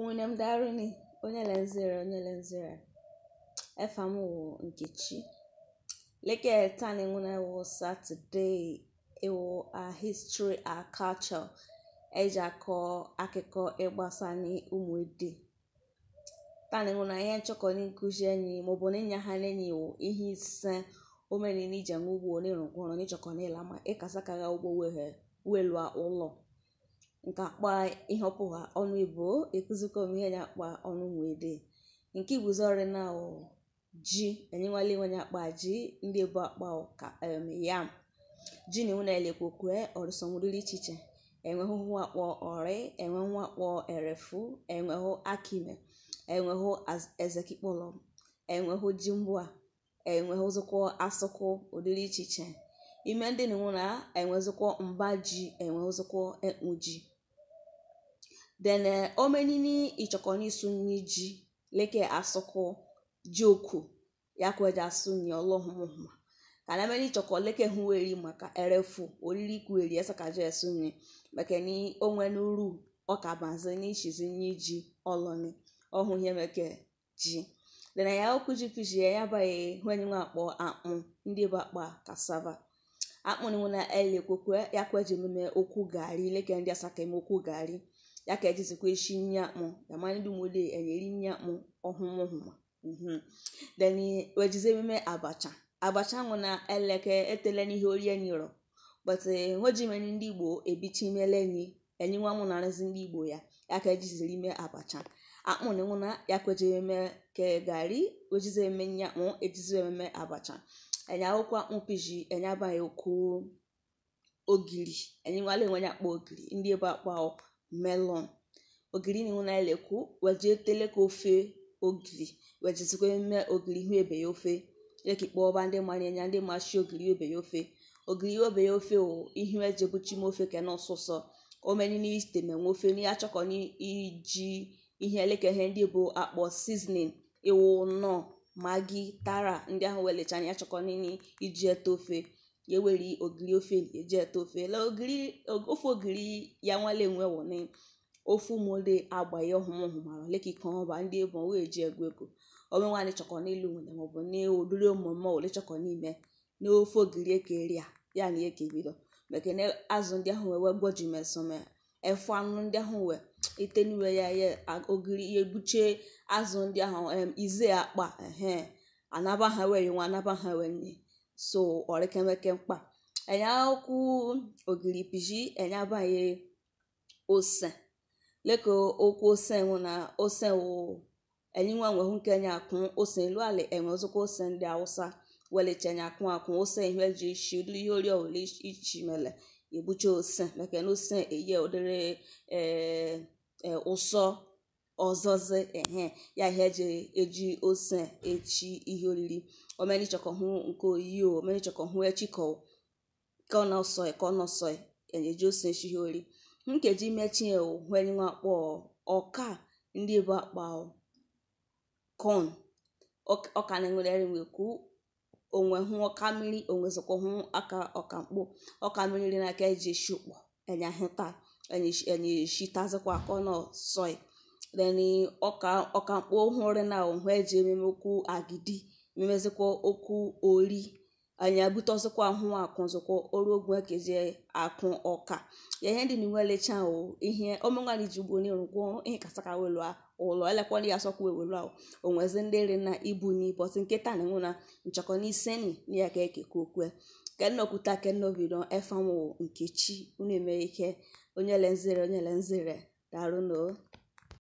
Ụnụ̀dàrụ̀nị, onye lezere onye lezere efa m wụ Nkechi. Leke tani nguna e wụ Saturday ewu a history a culture eji akọ akụkọ ịgbasa n'ụmụ ede. Tani nguna ihe nchọkọ ni nkuzi enyi maọbụ na ịnya ha n'enyi wụ ihe ise omeni ni ije ngugwu ni rungwono ni chọkọ ni lama ịkasa kaga ugbo wehe welua ụlọ. nke akpa ihe ọnụ igbo ekụzikọ ihe nya akpa ọnụ nwede nke iguzori na ji enyenwala nya akpa ji ndị ebu akpa ka um yam ji na iwu na-elekwokwe ọrịsọnwụrịrị iche iche enwehụ akpọ ọrị enwehụ akpọ erefu enwehụ akime enwehụ ezekikpọlọ enwehụ ji mgbua enwehụzụkwọ asụkwụ ụdịrị iche iche ime ndị na iwu na enwezụkwọ mba ji enwehụzụkwọ ekpu ji then eh, omenini ìtsọ̀kọ̀ní sunni dzi leke asɔkɔ dzioko yaku edza sunni ɔlɔhumahuma kana mɛni tsɔkɔ leke hu eri erefu ka ɛrɛfu olili ku eri onwe kadzɔ ɛsunni mɛkɛni oŋɛnu ru ɔkabanze ni tsizi ni dzi ɔlɔni ɔhu yɛ mɛkɛ ji. then ya kudzi kudzi yaba ye huɛni ŋu akpɔ akpɔ kasava akpɔ na ɛli ya yaku edzi okwu gari leke ndị asaka mɛ okwu gari. E yakhethizikweshinyamwo yamani lumule enyelinyamwo ohumwohuma mhm then wejizemime abacha abacha na eleke etele n'ihe ori enyiro but nwejimeni ndị igbo ebichimelenyi enyinwa mụ na-arụzi ndị igbo ya ya ka ejiziri ime abacha akpụna nwụna ya kwejeme ke gari wejizeme nyakpụ ejizememe abacha enye akwụkwọ akpụ piji enye abaghị okwu ogiri enyiwala enwe ya akpọ ogiri ndị ebe akpa melon ogiri na-enwe na-elekwu wejee tele ka ofe ogiri wejezikwe mee ogiri ihu ebe ya ofe leki kpọọba ndị mara anya ndị machi ogiri obe ya ofe ogiri obe ya ofe wụ ebuchi ejebuchim ofe kena ọsụsọ omeni n'ite menwe ofe n'ihe achọkọ iji ihe eleke ndị bụ akpọ seasoning iwu nọ magi tara ndị ahụ welecha na achọkọ iji ete ofe ya eweri ogiri ofe eji ete ofe la ogiri ofe ogiri ya nwale nwe wone ofu ụmụde agba ya ọhụrụ hụmara lekika ọba ndị ebo wee ji egwu ego ọnwe nwaanyị chọkọ n'elu nwere maọbụ n'odiri omume ole chọkọ n'ime n'ofe ogiri ekeri ya ya na eke bido maka azụ ndị ahụ wee gwoji mesome efu anụ ndị ahụ wee itenuwe ya ya ogiri ya ebuchie azụ ndị ahụ ize akpa ehe anaba ha nwa anaba ha nye so ọrịkemeke mkpa piji ogiripiji enyabanye ose leko okwu ose nwụ na ose wụ enyinwa nwehụ nke nya akwụ ose elu ala enwe ozokwa ose ndị awụsa welicha nya akwụ akwụ ose ihe ji ishi ụdịrị ihe ori ọwụla ichi mele egbucha ose meke na ose eye ụdịrị ee ụsọ ọzọzị ehe ya ihe eji eji ose echi ihe oriri omenichọkọhụ nke oyiyo omenichọkọhụ echikọ kọnọsọi kọnọsọi e eji ose echi ihe oriri nkeji mechie hwenwa kpọ ọka ndị bụ akpa kon ọka na-enwere nwe kwu onwe hụ ọka mmiri onwezikwa hụ aka ọka mkpụ ọka mmiri n'aka eji esi ụkpọ enye tazikwa enye shitazikwa kọnọ sọị. then ọka ọkamkpo hụrụ na ohụ eji ememe okwu agidi ememezikwa okwu ori anyị abute ọzọkwa ahụ akụ ọzọkwa ọrụ ogwe kezie akụ ọka ya ihe ndị niwe lecha o ihe omenwanyị ji ugbo n'iru gwọ ihe kasaka welu ụlọ elekwana ya asọkwa ewelu ahụ onwezi ndị nri na ibu nke nkịta na enwe na nchọkọ n'iseni na ya ka ekeke okwe kenokwuta kenobido efanwo nkechi unu eme ike onye lenzere onye lenzere darụnụ